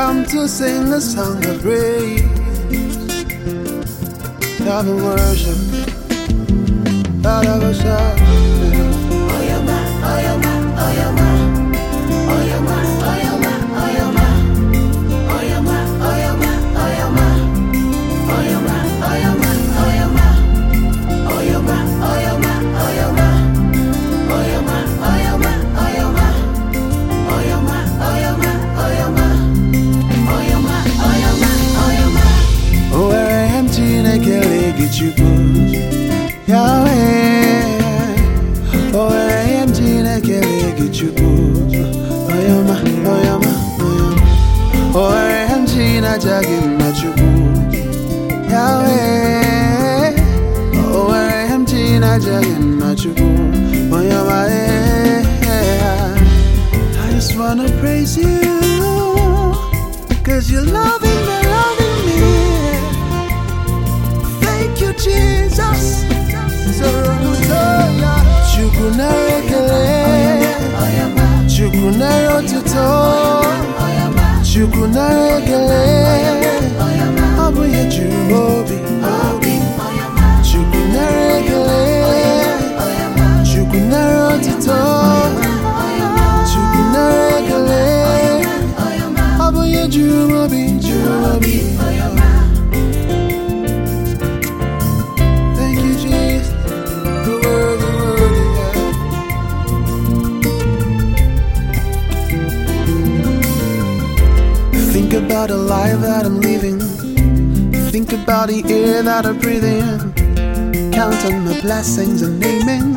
come to sing a song of praise, love and worship, love and with you, boo. Oh, you're my, oh, you're oh, yeah my. Oh, I'm Gina Jagging, not you, Oh, I'm Jagging, you, Oh, yeah I just wanna praise you. Jerobi, Jerobi for your mouth. Thank you, Jesus. The word, the word, yeah. Think about a life that I'm living. Think about the air that I breathing count on my blessings and naming.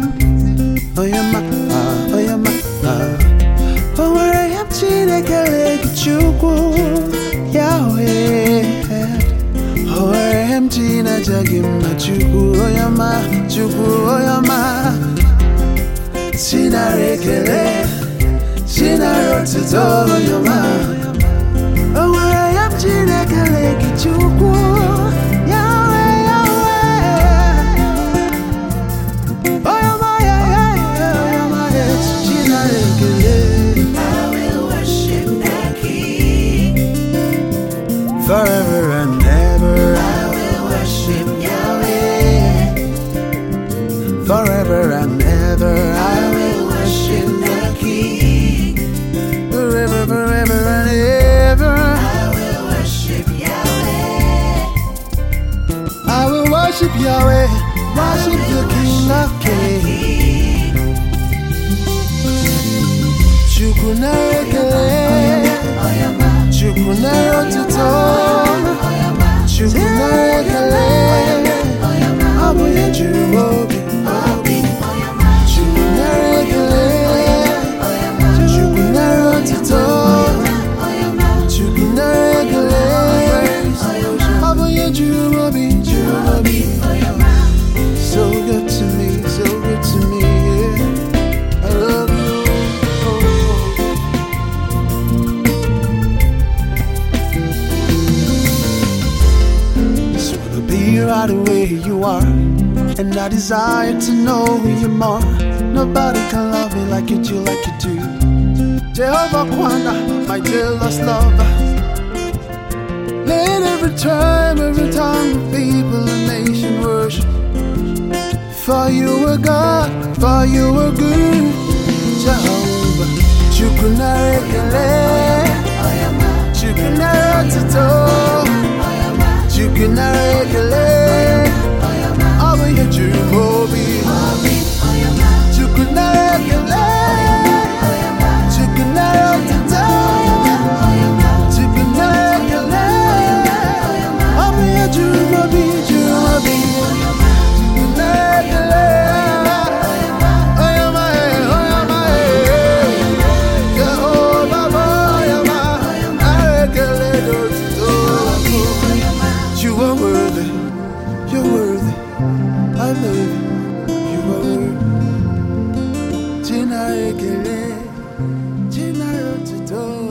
Oh, yeah, my, oh, yeah, my, oh. where I am, m Chinaja gị mma Chukwu onye ọma Chukwu onye ọma Chinara ekele Chinara otuto onye ọma o nwere ya m Chineke gị Chukwu Forever forever and ever I be right where you are. And I desire to know you more. Nobody can love me like you do, like you do. Jehovah Kwana, my jealous lover. Let every time, every time the people and nation worship. For you O God, for you are good, Jehovah. Shukunare ele, Shukunare tito. China ekele China otuto